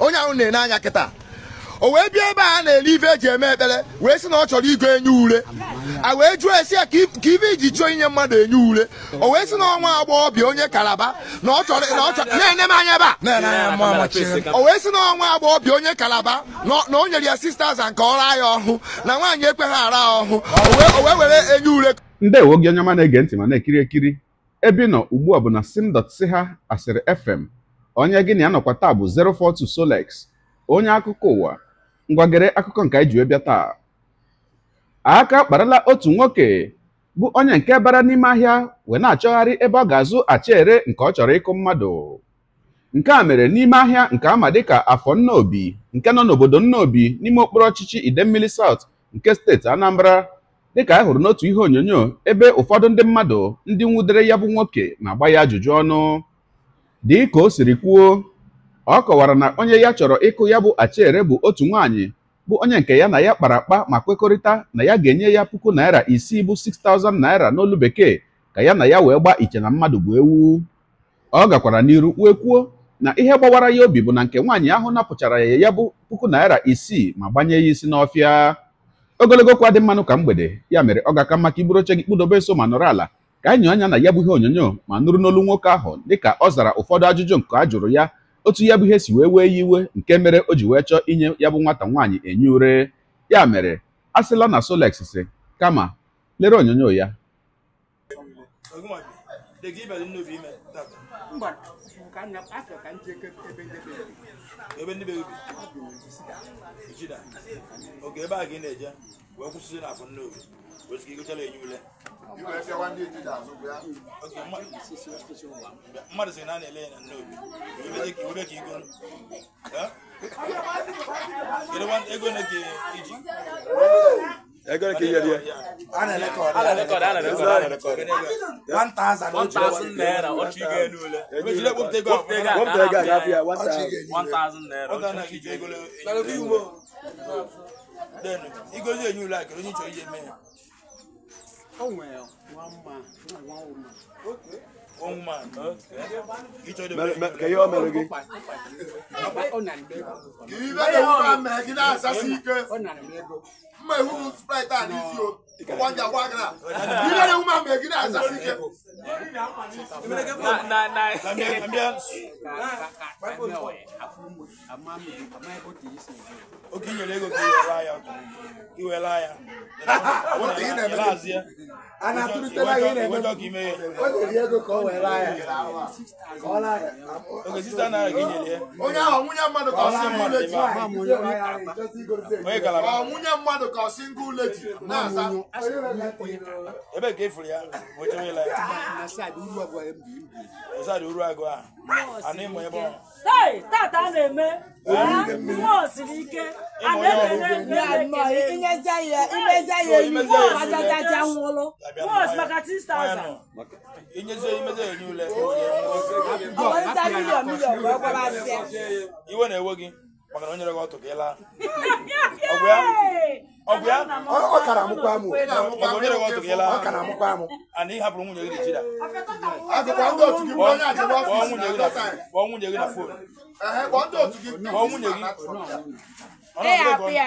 onye ahụ na-ene anya kịta o wee bịa ebe a na-ele ife eji eme ekpere wee sị na ọ chọrọ igo enye ure a wee jụọ esi ya ka ife iji chụọ inye mmadụ enye ure o wee sị na ọnwa agbọghọbịa onye kalaba na ọ chọrọ na ọ chọrọ na-ene m anya ebe a o wee sị na ọnwa agbọghọbịa onye kalaba na o nyere ya sisters nke ọra ya ọhụụ na nwaanyị ekweghị ara ya ọhụụ o wee were enye ure ndewo gị onye ọma na-ege ntị ma na-ekiri ekiri ebe nọ ugbu a bụ na sim.ch asịrị fm onye gị na ya nọkwa taa bụ 042 Solex onye akụkọ ụwa ngwagere akụkọ nke anyị ji bịa taa aka kparala otu nwoke bụ onye nke bara n'ime ahịa wee na-achọgharị ebe ọ ga-azụ achịere nke ọ chọrọ ịkụ mmadụ nke a mere n'ime ahịa nke ama dịka afọ nnaobi nke nọ n'obodo nnaobi n'ime okporo ọchịchị idemmili saut nke steeti Anambra dịka anyị hụrụ n'otu ihe onyonyo ebe ụfọdụ ndị mmadụ ndị nwudere ya bụ nwoke na-agba ya ajụjụ ọnụ ka o siri kwuo ọ kọwara na onye ya chọrọ ịkụ ya bụ achere bụ otu nwaanyị bụ onye nke ya na ya kpara akpa ma kwekọrịta na ya ga-enye ya puku naira isii bụ 6000 naira n'olu bekee ka ya na ya wee gbaa iche na mmadụ bụ ewu ọ gakwara n'iru kwue kwuo na ihe gbawara ya obi bụ na nke nwaanyị ahụ napụchara ya ya bụ puku naira isii ma gbanye ya isi n'ọfịa ogologo kwa dị mmanụ ka mgbede ya mere ọ ga-aka maka iburu oche gị kpụdobe so ma nọrọ ala ka anyị anya na ya bụ ihe onyonyo ma nụrụ n'olu nwoke ahụ dịka ọ zara ụfọdụ ajụjụ nke a jụrụ ya otu ya bụ ihe si wee wee ya iwe nke mere o ji wee chọọ inye ya bụ nwata nwaanyị enye ure ya mere a na Solex si kama lere onyonyo ya de gị bịara nnobi ime tata mba ka nna afọ ka ndị ebe ndị be ebe ndị be obi ijida oge ebe a gị na-eje wee kwụsịsị n'afọ nnobi wee sịka igochala enye ule mmadụ sị na a na-ele ya na nnobi iwebe ka igo kedu ego na ka iji They're gonna kill you. Ana record. Ana record. Ana record. Ana record. One thousand. One thousand naira. What you get? What you get? What you get? What you get? What you get? One thousand naira. What you get? What you get? Then he goes here. You like? You need to get me. Oh well, one man, one woman. Okay. One man. Okay. Can you all marry again? Give me the woman, man. Give us a secret. mma ihu sprite a n'isi o wanja wagra ego ka iwere ya gị nyere ya onye ahụ nwunye mmadụ ka ọ sị mmadụ echi onye kalaba nwunye mmadụ ka for single lady náà sa. ebe ka efuru ya wetin onye lai. osadi uru agụ a ana ịmụ ebe ọ. tata a na-eme nwa osiri ike a na-ekele imezi ya enyi ajajaja nwụrụ nwa osi maka 6000. inyezie imezi ya enyi ule. ọ bụ nta milion milion wee gwara asị. iwe na-ewe gị maka onye rego ọtụ ka ị laa ọgwụ ya ọgwụ ya ọ kara amụkwa amụ maka onye rego ọtụ ka ị laa ọ kara amụkwa amụ ana ị hapụrụ nwunye gị na chida kpọọ nwunye gị kpọọ nwunye gị na fon kpọọ nwunye gị ọ na-agụ ya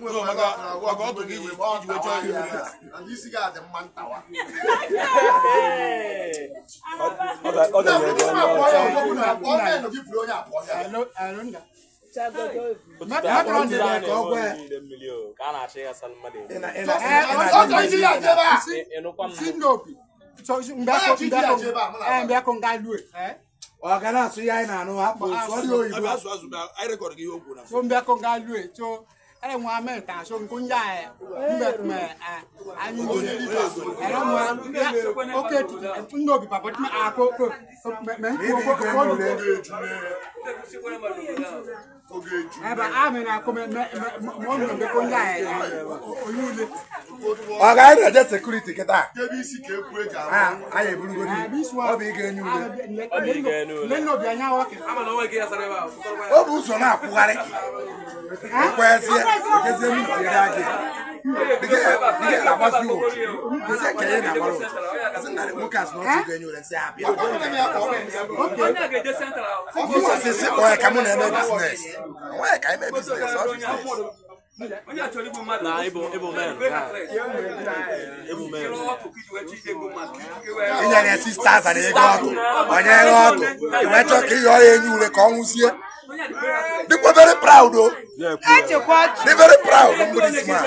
maka ọ ga asụ anyị na-anụ ha kpọọ ɛyɛ ŋun amɛ kan so nko nya yɛ e, nbɛ kumɛ ɛ e, ayi ŋun yɛ ɛrɛ ŋun yɛ oke tutu n n'o bi papa tuma a ko ko mɛ n ko ko ko do ɛ bɛ a mɛ na ko mɛ mɛ mɔ ninnu bɛ ko nya yɛ e, o y'u le. ọ̀gá ẹ̀ dẹ̀ jẹ́ security kẹta. débìsì k'e kú e jà. a yẹ buluko di ọ b'i kẹ ẹni wuli. ọ b'i kẹ ẹni wuli. lẹ́nu òbí a yà wá kẹ. a ma n'o wẹ̀ k'i yà sara e b'a. o b'u sɔn n'a kugari. o kọ ẹ fiyẹ because they need to I'm na ebo ebo mẹrin ebo mẹrin. ìyá ni ẹsì stars àti ẹgbẹ́ ọ̀tún ọ̀nyẹ́ ẹgbẹ́ ọ̀tún very proud o. Oh. They're very proud of this man.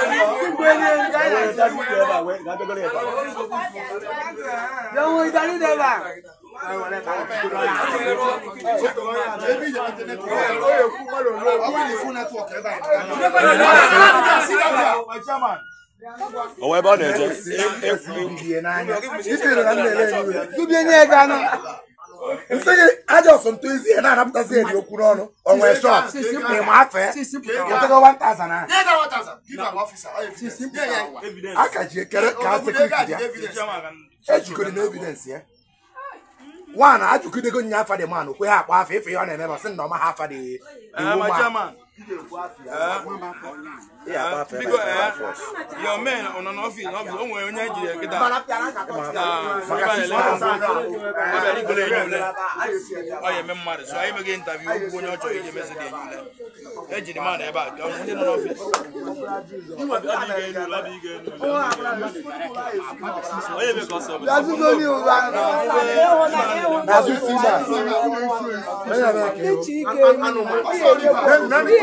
Chairman. Ọwọ́ ẹ bá ọ̀nà ẹ̀jẹ̀. Ibi ẹni ẹ̀ga náà. nsịghị aja ọsọntụ ezi ya na-anapụtazi eri okwu n'ọnụ onwe shọt ịma afọ ya ọtụgo 1000 a ka ji ekere ka a sekuriti e ya ejikọrọ na evidensị ya nwaanyị ajụkidego nya afa dị man kwe ha akpa afọ ife ihe ọ na-emeba sị na ọma ha afa dị ah, iwu ma because your men on an office office o nwere onye jiri kita ọbịa enyule ọ ya eme mmadụ so anyị meghị ntabi okwu onye ọ chọrọ iji emezi dị enyule ejiri mmadụ ebe a ka ndị nọ n'ọfis Anụmanụ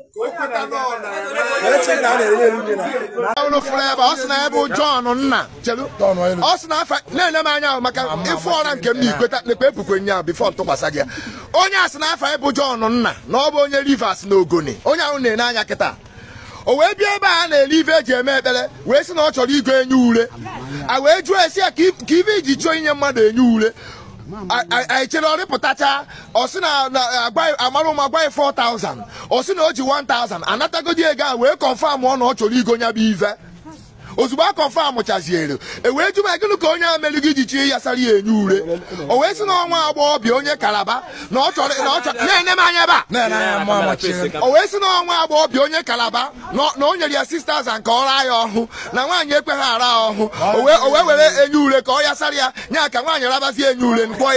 unu fụrụ ebe ọ sị na ebe John nna ọ sị na afa na-enye m anya ahụ maka ịfụ ọra nke m na ikweta nekpe epukwe nya bifọ ntụkwasị gị ya onye a sị na afa ebe John nna na ọ bụ onye Rivers na ogone onye ahụ na-enye anya kịta o wee bịa ebe a na-ele ife eji eme ekpere wee sị na ọ chọrọ igo enye ure a wee jụọ esi ya ka ibe iji chọọ inye mmadụ enye ure anyị chere ọ pụtacha ọ sị na amara ụmụ 4000 ọ na o ji 1000 anatagodi ego a wee kọnfam ọ na ọ chọrọ igo nya bụ ive ozugbo a kọnfam chaziere e wee jụ ma gịnị ka onye a gị ji chi yasara ya enye ure o wee sị na ọnwa agbọghọbịa onye kalaba na ọ chọrọ na-ene m anya ebe a o wee si na ọnwa agbọghọbịa onye kalaba na o nyere ya sisters nke ọra ya ọhụ na nwaanyị ekwe ha ara ya ọhụ o wee were enye ure ka ọ sara ya nya ka nwaanyị rabazi enye ure nkpọ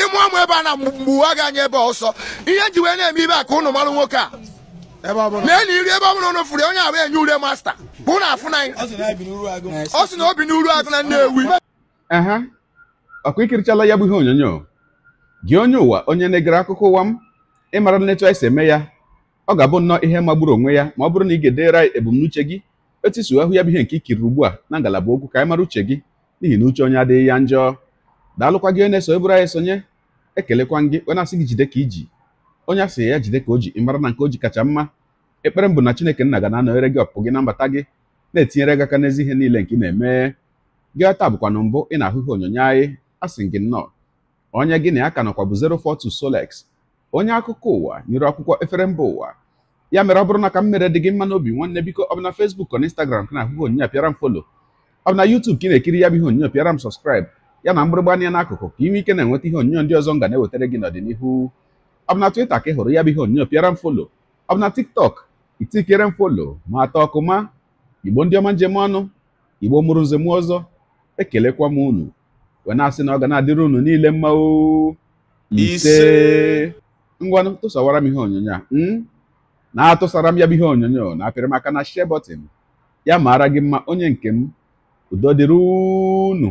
ịmụ ọmụ ebe a na mgbuwa gị anya ebe ọsọ ihe nji wee na-eme ibe a ka ụnụ marụ nwoke a mee na iri ebe ọ bụla ụnụ fụrụ onye abụ enye ure masta bụ na afụ anyị ọ sị na obi n'uru agụ na Nnewi ọkụ ikirichala ya bụ ihe onyonyo gị onye ụwa onye na-egere akụkọ ụwa m ịmara nletu anyị si eme ya ọ ga-abụ nnọọ ihe magburu onwe ya ma ọ bụrụ na ị ga-edere ebumnuche gị etu isi ahụ ya bụ ihe nke ikiriri ugbu a na ngalaba okwu ka anyị mara uche gị n'ihi na uche onye adịghị ya njọ daalụkwa gị onye na-eso eburu anyị esonye ekelekwa gị onye asị gị jide ka iji onye asị ya jide ka o ji ịmara na nke o ji kacha mma ekpere mbụ na chineke nna ga na-anọnyere gị ọpụpụ gị na mbata gị na-etinyere gị aka n'ezi ihe niile nke ị na-eme gị taa bụkwa na mbụ ị na-ahụ ihe onyonyo anyị asị gị nnọọ onye gị na ya ka nọkwa bụ 042 Solex onye akụkọ ụwa nyere akwụkwọ efere mba ụwa ya mere ọ bụrụ na ka m mere dị gị mma n'obi nwanne biko ọ bụ na Facebook ọ na Instagram ka na-ahụ ihe onyonyo pịara m folo ọ bụ na YouTube ka ị na-ekiri ya bụ ihe onyonyo pịara m sọskraịb ya na mgbịrịgba anya n'akụkụ ka ị nwee ike na-enweta ihe onyonyo ndị ọzọ m ga na-ewetara gị n'ọdịnihu ọ bụ na ka ị hụrụ ya bụ ihe onyonyo pịara m folo ọ bụ na TikTok itikere m folo ma atọ ọkụ ma igbo ndị ọma njem ọnụ igbo mụrụ nze m ọzọ ekelekwa m unu wee na-asị na ọ ga na-adịrị unu niile mma ise ngwanụ tụsawara m ihe onyonyo a hmm? na-atụsara m ya bụ ihe onyonyo na-apịrị m aka na share button ya maara gị mma onye nke m udo dịrị unu